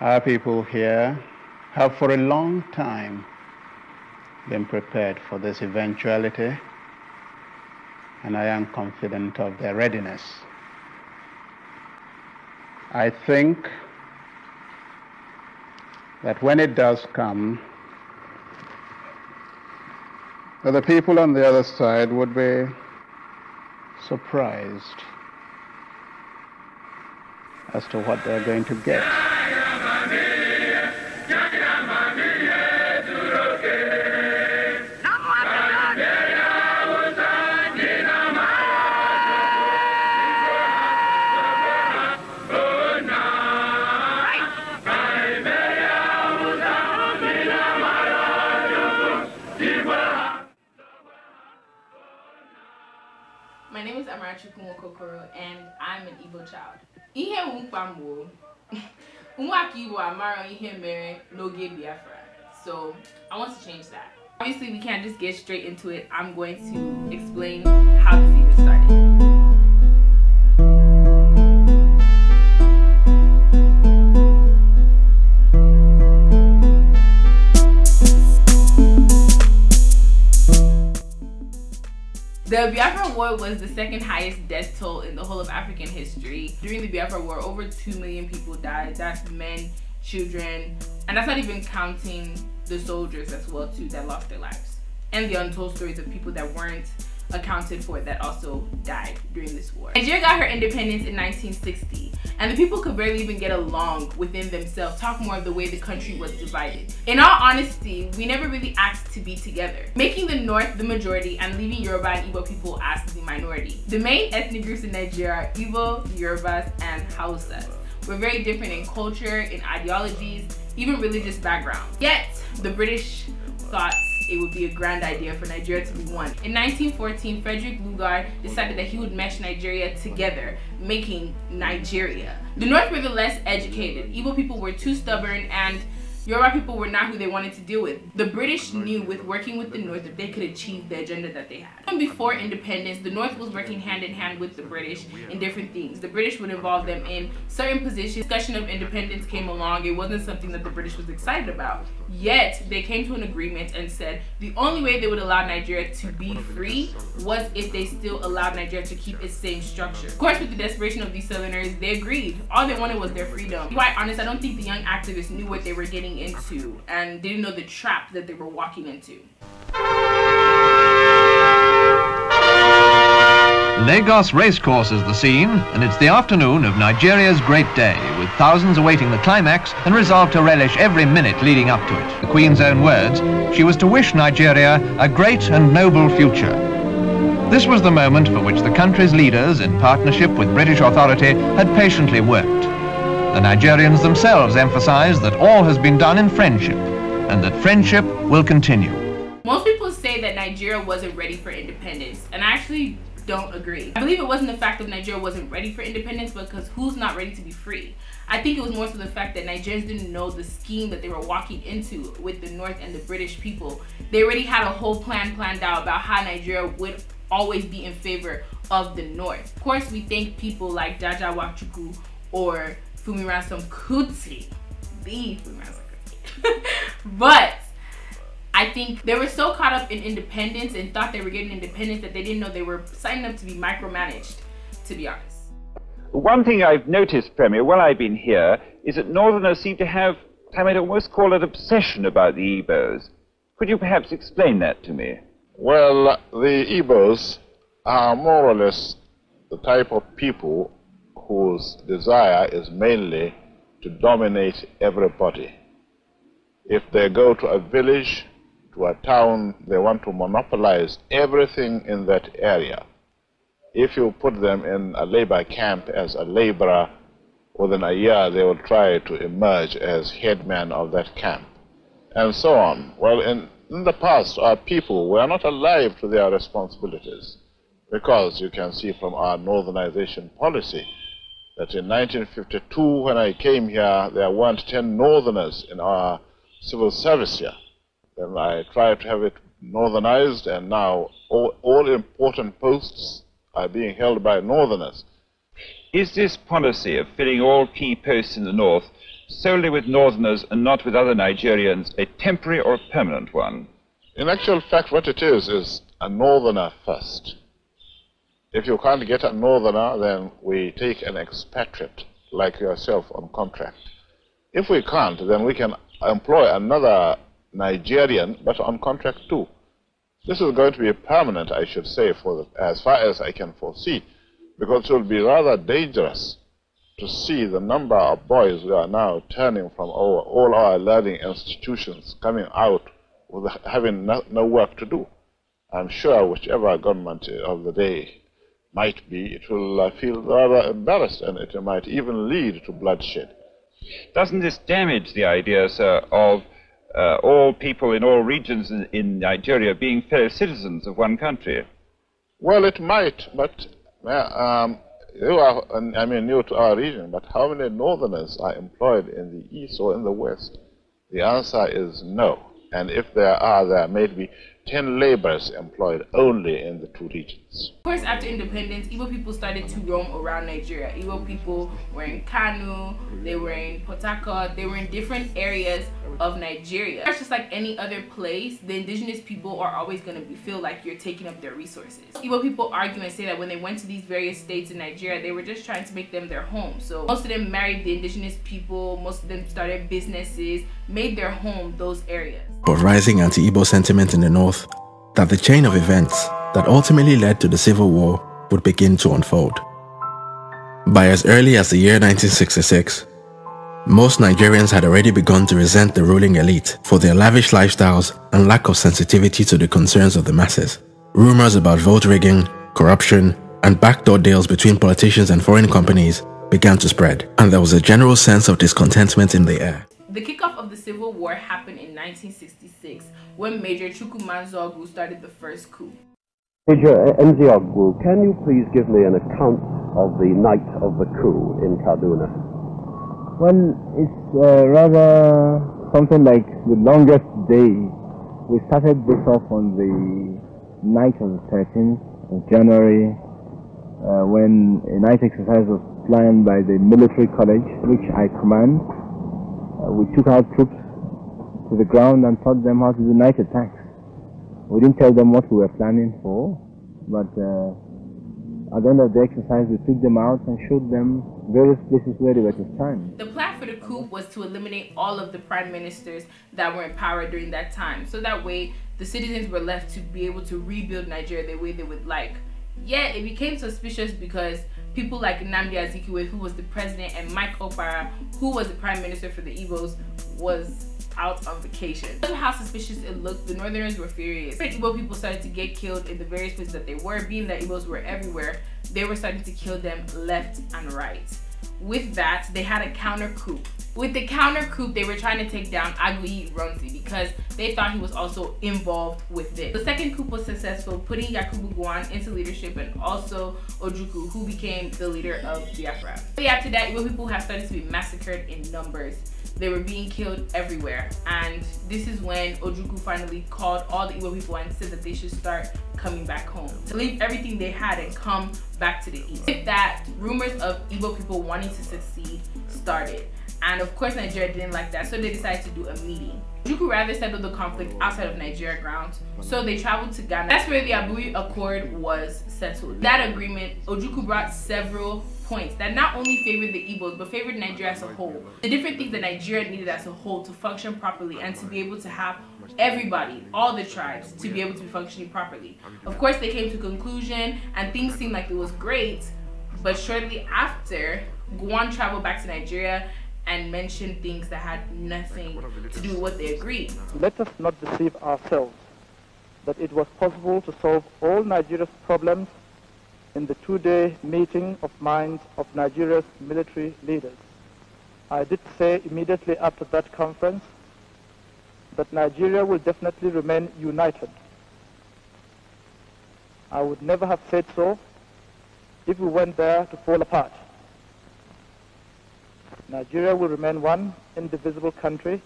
Our people here have for a long time been prepared for this eventuality, and I am confident of their readiness. I think that when it does come, that the people on the other side would be surprised as to what they're going to get. My name is Amarachi Kumokokoro and I'm an Igbo child. Ihe mkpambo, umwaka Igbo amaro ihe mere n'oge Biafra. So I want to change that. Obviously we can't just get straight into it. I'm going to explain how this even started. The Biafra War was the second highest death toll in the whole of African history. During the Biafra War, over 2 million people died. That's men, children, and that's not even counting the soldiers as well too that lost their lives. And the untold stories of people that weren't accounted for that also died during this war. Nigeria got her independence in 1960 and the people could barely even get along within themselves, talk more of the way the country was divided. In all honesty, we never really asked to be together, making the North the majority and leaving Yoruba and Igbo people as the minority. The main ethnic groups in Nigeria are Igbo, Yorubas, and Hausas. We're very different in culture, in ideologies, even religious background. Yet, the British thought it would be a grand idea for Nigeria to be one. In 1914, Frederick Lugard decided that he would mesh Nigeria together, making Nigeria. The North were the less educated. Igbo people were too stubborn and Yoruba people were not who they wanted to deal with. The British knew with working with the North that they could achieve the agenda that they had. Even before independence, the North was working hand in hand with the British in different things. The British would involve them in certain positions. Discussion of independence came along. It wasn't something that the British was excited about. Yet, they came to an agreement and said the only way they would allow Nigeria to be free was if they still allowed Nigeria to keep its same structure. Of course, with the desperation of these Southerners, they agreed. All they wanted was their freedom. To be quite honest, I don't think the young activists knew what they were getting walking into and didn't know the trap that they were walking into. Lagos Racecourse is the scene, and it's the afternoon of Nigeria's great day, with thousands awaiting the climax and resolved to relish every minute leading up to it. The Queen's own words, she was to wish Nigeria a great and noble future. This was the moment for which the country's leaders, in partnership with British authority, had patiently worked. The Nigerians themselves emphasize that all has been done in friendship and that friendship will continue. Most people say that Nigeria wasn't ready for independence, and I actually don't agree. I believe it wasn't the fact that Nigeria wasn't ready for independence because who's not ready to be free? I think it was more so the fact that Nigerians didn't know the scheme that they were walking into with the North and the British people. They already had a whole plan planned out about how Nigeria would always be in favor of the North. Of course, we thank people like Jaja Wachuku or Fumi Ransom Kuti. The Fumi Ransom Kuti. but I think they were so caught up in independence and thought they were getting independence that they didn't know they were signing up to be micromanaged, to be honest. One thing I've noticed, Premier, while I've been here, is that Northerners seem to have, I might almost call it obsession about the Igbos. Could you perhaps explain that to me? Well, the Igbos are more or less the type of people whose desire is mainly to dominate everybody. If they go to a village, to a town, they want to monopolize everything in that area. If you put them in a labor camp as a laborer, within a year they will try to emerge as headman of that camp, and so on. Well, in, in the past, our people were not alive to their responsibilities because you can see from our northernization policy that in 1952, when I came here, there weren't 10 northerners in our civil service here. Then I tried to have it northernized, and now all, all important posts are being held by northerners. Is this policy of filling all key posts in the north solely with northerners and not with other Nigerians a temporary or permanent one? In actual fact, what it is is a northerner first. If you can't get a northerner, then we take an expatriate like yourself on contract. If we can't, then we can employ another Nigerian, but on contract too. This is going to be permanent, I should say, for the, as far as I can foresee, because it will be rather dangerous to see the number of boys who are now turning from our, all our learning institutions, coming out with having no, no work to do. I'm sure whichever government of the day might be it will feel rather embarrassed and it might even lead to bloodshed. Doesn't this damage the idea, sir, of uh, all people in all regions in, in, Nigeria being fellow citizens of one country? Well, it might, but um, you are, I mean, new to our region, but how many northerners are employed in the east or in the west? The answer is no. And if there are, there may be 10 laborers employed only in the two regions. Of course, after independence, Igbo people started to roam around Nigeria. Igbo people were in Kanu, they were in Potaka, they were in different areas of Nigeria. It's just like any other place, the indigenous people are always going to feel like you're taking up their resources. Igbo people argue and say that when they went to these various states in Nigeria, they were just trying to make them their home. So most of them married the indigenous people, most of them started businesses, made their home those areas. But rising anti-Igbo sentiment in the north, that the chain of events that ultimately led to the Civil War would begin to unfold. By as early as the year 1966, most Nigerians had already begun to resent the ruling elite for their lavish lifestyles and lack of sensitivity to the concerns of the masses. Rumors about vote rigging, corruption, and backdoor deals between politicians and foreign companies began to spread, and there was a general sense of discontentment in the air. The kickoff of the Civil War happened in 1966 when Major Chukwumanzo Ogwu started the first coup. Uh, Major Nziogwu, can you please give me an account of the night of the coup in Kaduna? Well, it's uh, rather something like the longest day. We started this off on the night of the 13th of January uh, when a night exercise was planned by the military college, which I command. Uh, we took our troops to the ground and taught them how to do night attacks. We didn't tell them what we were planning for, but uh, at the end of the exercise, we took them out and showed them various places where they were to stand. The plan for the coup was to eliminate all of the prime ministers that were in power during that time, so that way the citizens were left to be able to rebuild Nigeria the way they would like. Yet it became suspicious because people like Nnamdi Azikiwe, who was the president, and Mike Opara, who was the prime minister for the Igbos, was out on vacation. Because how suspicious it looked, the Northerners were furious. Igbo people started to get killed in the various places that they were, being that Igbos were everywhere, they were starting to kill them left and right. With that, they had a counter coup. With the counter coup, they were trying to take down Agui Ronzi because they thought he was also involved with this. The second coup was successful, putting Yakubu Gowon into leadership and also Ojuku, who became the leader of Biafra. But after that, Igbo people have started to be massacred in numbers. They were being killed everywhere. And this is when Ojuku finally called all the Igbo people and said that they should start coming back home. To leave everything they had and come back to the East. With that, rumors of Igbo people wanting to succeed started. And of course Nigeria didn't like that, so they decided to do a meeting. Juku rather settled the conflict outside of Nigeria grounds, so they traveled to Ghana. That's where the Abuja Accord was settled. That agreement, Ojuku brought several points that not only favored the Igbos but favored Nigeria as a whole. The different things that Nigeria needed as a whole to function properly and to be able to have everybody, all the tribes, to be able to be functioning properly. Of course, they came to conclusion and things seemed like it was great, but shortly after, Guan traveled back to Nigeria and mentioned things that had nothing to do with what they agreed. Let us not deceive ourselves that it was possible to solve all Nigeria's problems in the two-day meeting of minds of Nigeria's military leaders. I did say immediately after that conference that Nigeria will definitely remain united. I would never have said so if we went there to fall apart. Nigeria will remain one indivisible country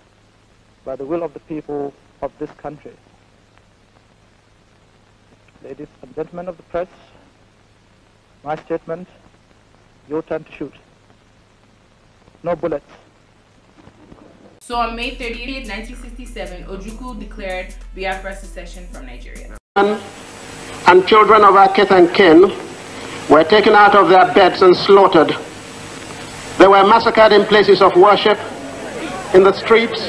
by the will of the people of this country. Ladies and gentlemen of the press, my statement, your turn to shoot. No bullets. So on May 30th, 1967, Ojukwu declared Biafra secession from Nigeria. And children of our kith and kin were taken out of their beds and slaughtered they were massacred in places of worship, in the streets,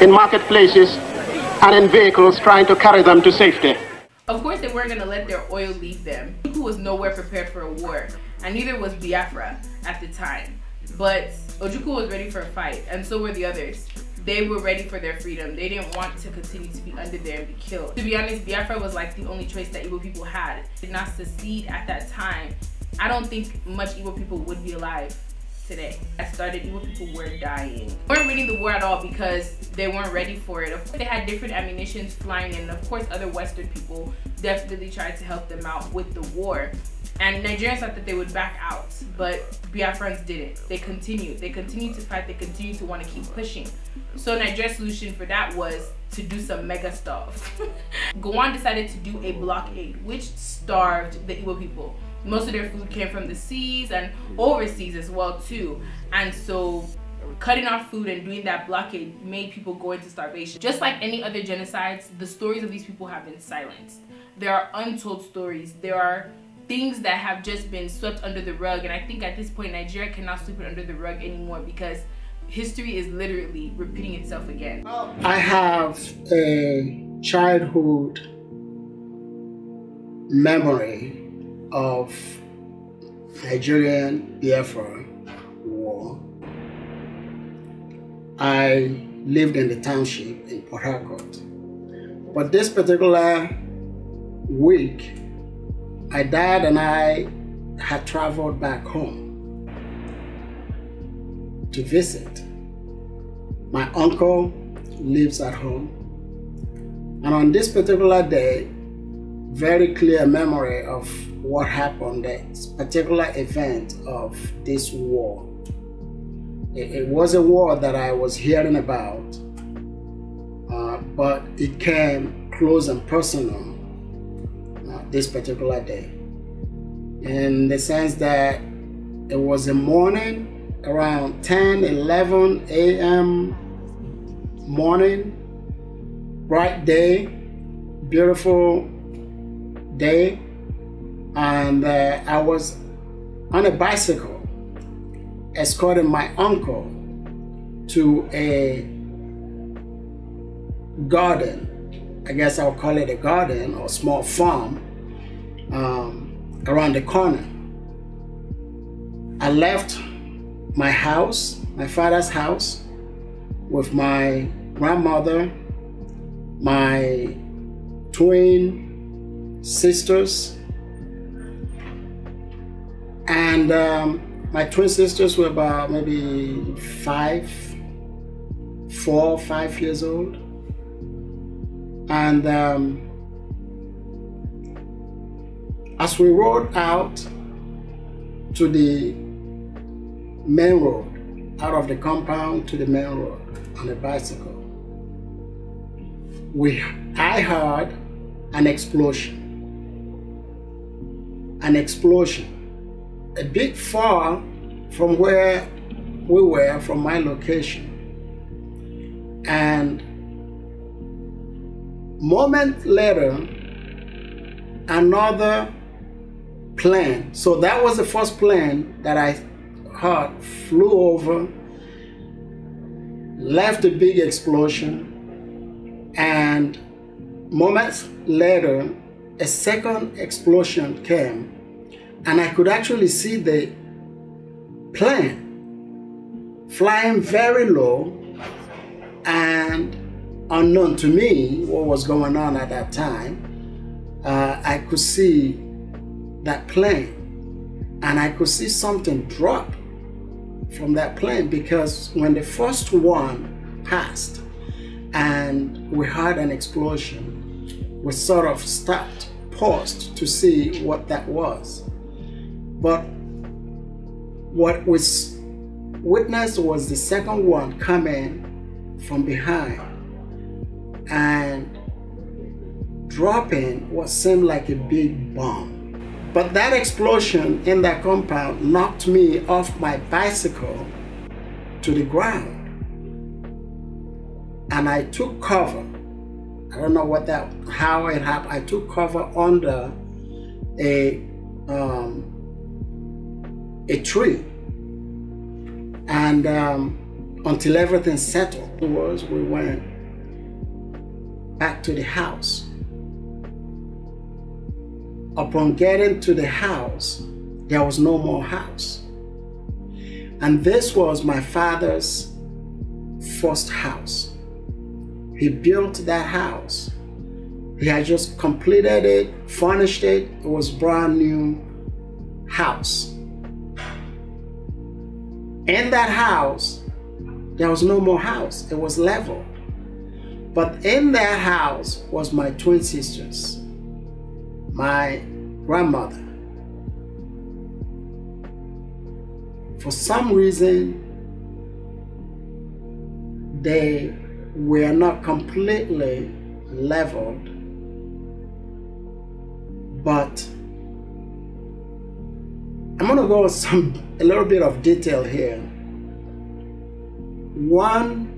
in marketplaces, and in vehicles trying to carry them to safety. Of course, they weren't going to let their oil leave them. Who was nowhere prepared for a war, and neither was Biafra at the time. But Ojukwu was ready for a fight, and so were the others. They were ready for their freedom. They didn't want to continue to be under there and be killed. To be honest, Biafra was like the only choice that Igbo people had. Did not secede at that time. I don't think much Igbo people would be alive today. I started even people were dying. They weren't reading the war at all because they weren't ready for it. Of course, they had different ammunitions flying in. Of course, other Western people definitely tried to help them out with the war. And Nigerians thought that they would back out, but Biafrans didn't. They continued. They continued to fight. They continued to want to keep pushing. So Nigeria's solution for that was to do some mega stuff. Gowon decided to do a blockade, which starved the Igbo people most of their food came from the seas and overseas as well too and so cutting off food and doing that blockade made people go into starvation just like any other genocides the stories of these people have been silenced there are untold stories there are things that have just been swept under the rug and i think at this point nigeria cannot sweep it under the rug anymore because history is literally repeating itself again i have a childhood memory of Nigerian Biafra War, I lived in the township in Port Harcourt. But this particular week, I died and I had traveled back home to visit. My uncle lives at home. And on this particular day, very clear memory of what happened, the particular event of this war. It, it was a war that I was hearing about, uh, but it came close and personal uh, this particular day in the sense that it was a morning around 10 11 a.m morning bright day beautiful day and uh, I was on a bicycle escorting my uncle to a garden. I guess I'll call it a garden or small farm um, around the corner. I left my house, my father's house, with my grandmother, my twin sisters, and um, my twin sisters were about maybe five, four, five years old. And um, as we rode out to the main road, out of the compound to the main road on a bicycle, we, I heard an explosion. An explosion a bit far from where we were, from my location. And moment later, another plane. So that was the first plane that I heard flew over, left a big explosion, and moments later, a second explosion came and I could actually see the plane flying very low and unknown to me what was going on at that time. Uh, I could see that plane and I could see something drop from that plane because when the first one passed and we had an explosion, we sort of stopped, paused to see what that was. But what was witnessed was the second one coming from behind and dropping what seemed like a big bomb. But that explosion in that compound knocked me off my bicycle to the ground. And I took cover. I don't know what that, how it happened. I took cover under a um, a tree. And um, until everything settled, was we went back to the house. Upon getting to the house, there was no more house. And this was my father's first house. He built that house. He had just completed it, furnished it. It was brand new house in that house, there was no more house, it was level. But in that house was my twin sisters, my grandmother. For some reason, they were not completely leveled, but I'm going to go some a little bit of detail here. One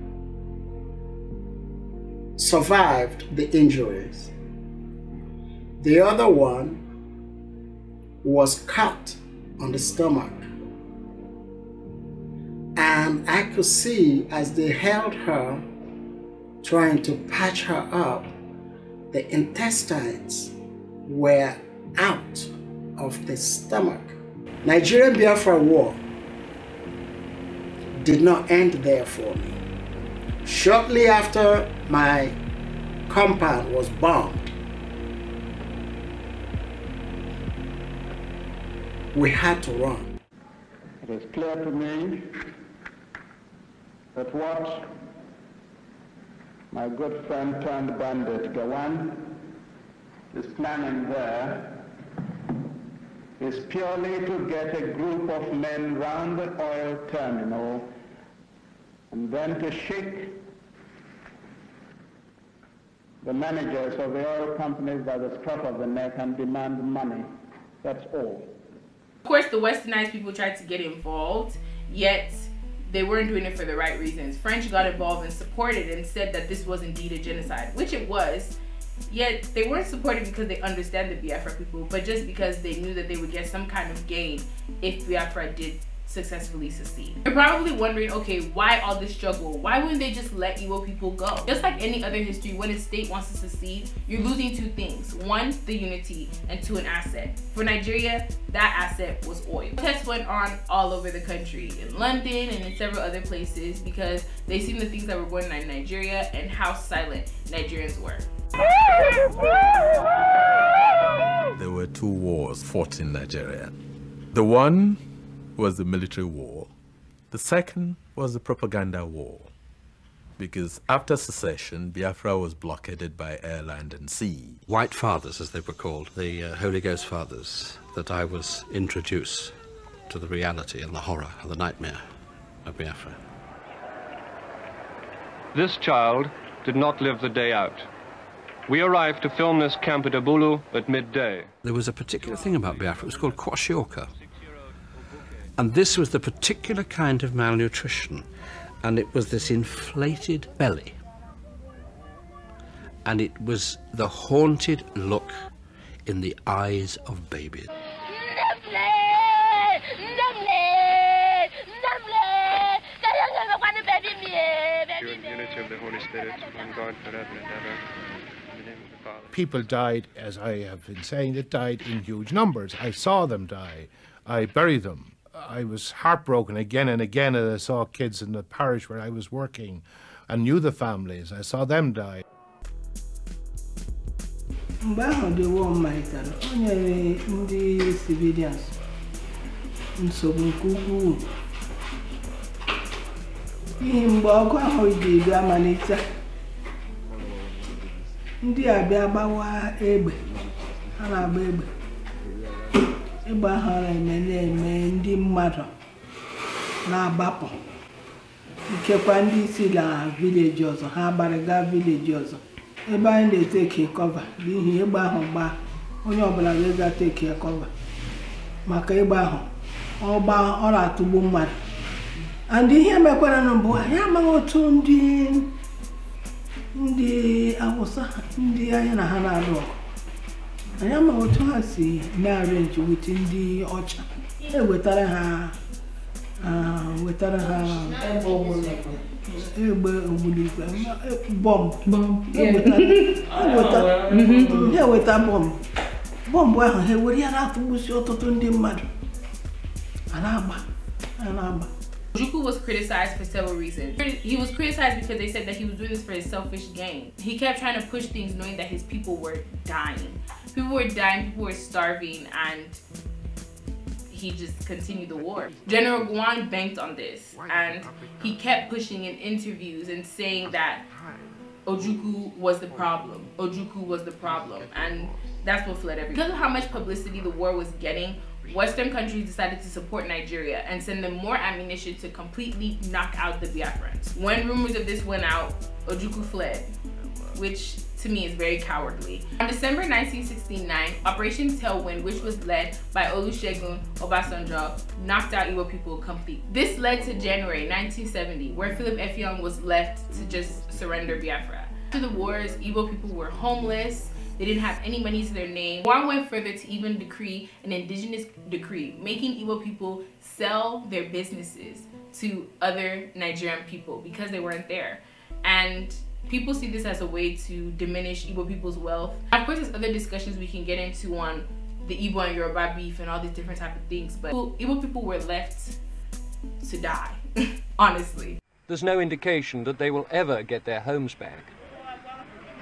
survived the injuries. The other one was cut on the stomach. And I could see as they held her, trying to patch her up, the intestines were out of the stomach. Nigerian Biafra War did not end there for me. Shortly after my compound was bombed, we had to run. It is clear to me that what my good friend turned bandit Gawan is planning there is purely to get a group of men round the oil terminal and then to shake the managers of the oil companies by the scruff of the neck and demand money. That's all. Of course, the westernized people tried to get involved, yet they weren't doing it for the right reasons. French got involved and supported and said that this was indeed a genocide, which it was, yet they weren't supported because they understand the Biafra people, but just because they knew that they would get some kind of gain if Biafra did successfully succeed. You're probably wondering, okay, why all this struggle? Why wouldn't they just let Igbo people go? Just like any other history, when a state wants to secede, you're losing two things. One, the unity, and two, an asset. For Nigeria, that asset was oil. Tests went on all over the country, in London and in several other places, because they seen the things that were going on in Nigeria and how silent Nigerians were. There were two wars fought in Nigeria. The one was the military war. The second was the propaganda war. Because after secession, Biafra was blockaded by air, land and sea. White Fathers, as they were called, the uh, Holy Ghost Fathers, that I was introduced to the reality and the horror and the nightmare of Biafra. This child did not live the day out. We arrived to film this camp at Abulu at midday. There was a particular thing about Biafra, it was called kwashiorkor. And this was the particular kind of malnutrition, and it was this inflated belly. And it was the haunted look in the eyes of babies. Spirit, one God forever and ever. People died, as I have been saying, it died in huge numbers. I saw them die. I buried them. I was heartbroken again and again as I saw kids in the parish where I was working and knew the families. I saw them die. war civilians n'ihi mgbe ọgụ ahụ ga ebi amalite ndị a bịa gbawa egbe ha na-agba egbe egbe ahụ na-eme na-eme ndị mmadụ na-agbapụ nkekwa ndị isi na vileji ọzọ ha gbarịga vileji ọzọ ebe anyị na-eteki kọva n'ihi egbe ahụ gbaa onye ọbụla ga-ega teki kọva maka egbe ahụ ọ gbaa ọ na-atụgbu mmadụ and ihe mekwara na mbụ anyị amaghị otu ndị ndị awụsa ndị anyị na ha na arụ ọgụ anyị amaghị otu ha si na-arenji wit ndị ọcha ewetara ha wetara ha egbe ogbunigwe bọmbụ eweta bọmbụ bọmbụ ahụ ha ewere ya na-atụgbusi ọtụtụ ndị mmadụ a na-agba a na-agba Juku was criticized for several reasons. He was criticized because they said that he was doing this for his selfish gain. He kept trying to push things knowing that his people were dying. People were dying, people were starving, and he just continued the war. General Guan banked on this, and he kept pushing in interviews and saying that Ojuku was the problem. Ojuku was the problem, and that's what fled everything. Because of how much publicity the war was getting, Western countries decided to support Nigeria and send them more ammunition to completely knock out the Biafrans. When rumors of this went out, Ojuku fled, which to me is very cowardly. On December 1969, Operation Tailwind, which was led by Olusegun Obasanjo, knocked out Igbo people completely. This led to January 1970, where Philip Effiong was left to just surrender Biafra. After the wars, Igbo people were homeless, they didn't have any money to their name. Juan went further to even decree an indigenous decree, making Igbo people sell their businesses to other Nigerian people because they weren't there. And people see this as a way to diminish Igbo people's wealth. Of course, there's other discussions we can get into on the Igbo and Yoruba beef and all these different type of things, but Igbo people were left to die, honestly. There's no indication that they will ever get their homes back.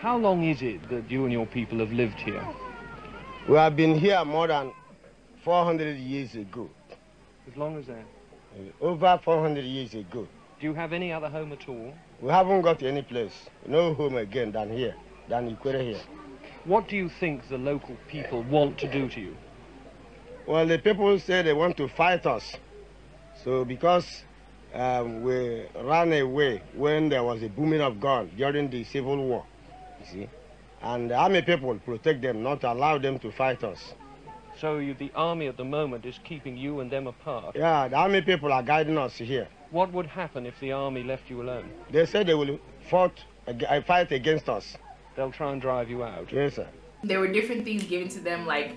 How long is it that you and your people have lived here? We have been here more than 400 years ago. As long as that? Eh, over 400 years ago. Do you have any other home at all? We haven't got any place, no home again than here, than Ikwere here. What do you think the local people want to do to you? Well, the people say they want to fight us. So because um, we ran away when there was a booming of guns during the Civil War, you see. And army people protect them, not allow them to fight us. So you, the army at the moment is keeping you and them apart? Yeah, the army people are guiding us here. What would happen if the army left you alone? They said they will fought, uh, fight against us. They'll try and drive you out? Yes, sir. There were different things given to them, like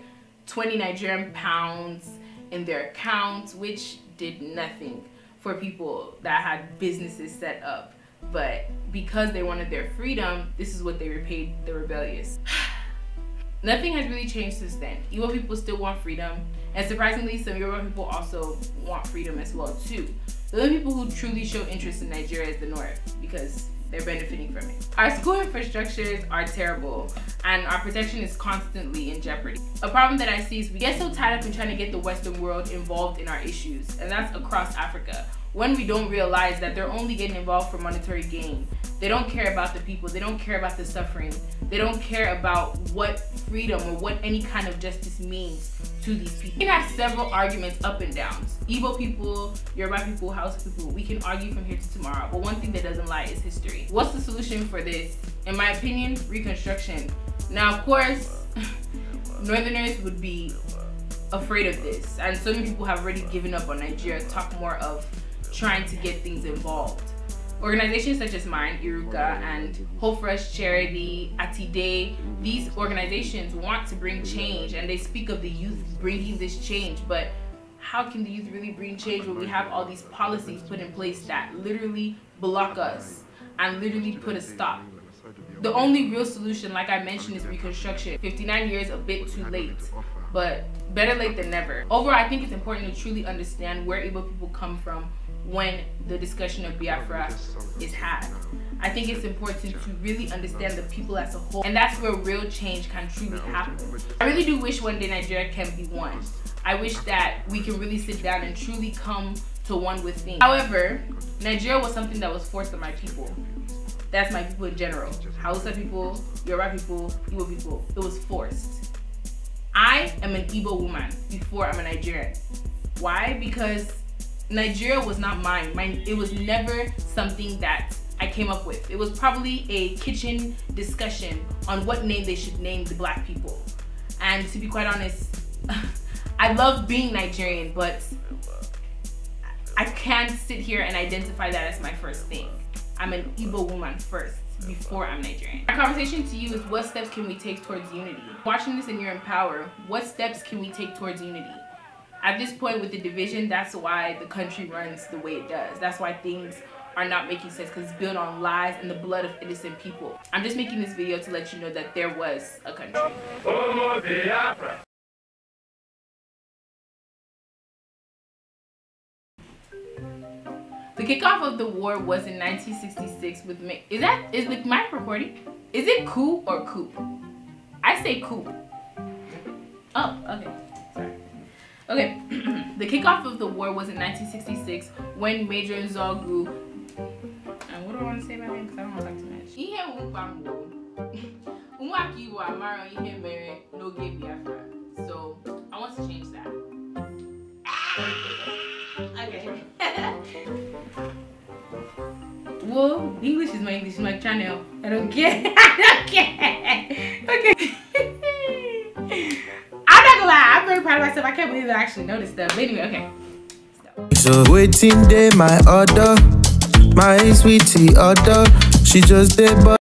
20 Nigerian pounds in their accounts, which did nothing for people that had businesses set up. But because they wanted their freedom, this is what they repaid the rebellious. Nothing has really changed since then. Yoruba people still want freedom, and surprisingly, some Yoruba people also want freedom as well too. The only people who truly show interest in Nigeria is the North because they're benefiting from it. Our school infrastructures are terrible and our protection is constantly in jeopardy. A problem that I see is we get so tied up in trying to get the Western world involved in our issues, and that's across Africa when we don't realize that they're only getting involved for monetary gain. They don't care about the people. They don't care about the suffering. They don't care about what freedom or what any kind of justice means to these people. We can have several arguments up and downs. Igbo people, Yoruba people, House people, we can argue from here to tomorrow. But one thing that doesn't lie is history. What's the solution for this? In my opinion, reconstruction. Now, of course, Northerners would be afraid of this. And so many people have already given up on Nigeria. Talk more of trying to get things involved. Organizations such as mine, Iruka, and Hope Fresh Charity, Atide, these organizations want to bring change and they speak of the youth bringing this change, but how can the youth really bring change when we have all these policies put in place that literally block us and literally put a stop? The only real solution, like I mentioned, is reconstruction. 59 years, a bit too late, but better late than never. Overall, I think it's important to truly understand where able people come from, when the discussion of Biafra is had. I think it's important to really understand the people as a whole, and that's where real change can truly happen. I really do wish one day Nigeria can be one. I wish that we can really sit down and truly come to one with things. However, Nigeria was something that was forced on my people. That's my people in general. Hausa people, Yoruba people, Igbo people. It was forced. I am an Igbo woman before I'm a Nigerian. Why? Because Nigeria was not mine. Mine it was never something that I came up with. It was probably a kitchen discussion on what name they should name the black people. And to be quite honest, I love being Nigerian, but I can't sit here and identify that as my first thing. I'm an Igbo woman first before I'm Nigerian. My conversation to you is what steps can we take towards unity? Watching this and you're in power, what steps can we take towards unity? at this point with the division, that's why the country runs the way it does. That's why things are not making sense because it's built on lies and the blood of innocent people. I'm just making this video to let you know that there was a country. The kickoff of the war was in 1966 with me, Is that is the mic recording? Is it coup or coup? I say coup. Oh, okay. Okay, the kickoff of the war was in 1966 when Major Zogu. And what do I want to say about him? Because I don't want to talk too much. So, I want to change that. Ah! Okay. Whoa, English is my English, my channel. I don't care. I don't care. Okay proud of myself. I can't believe I actually noticed them. But anyway, okay. So waiting day, my order, my sweetie order. She just did.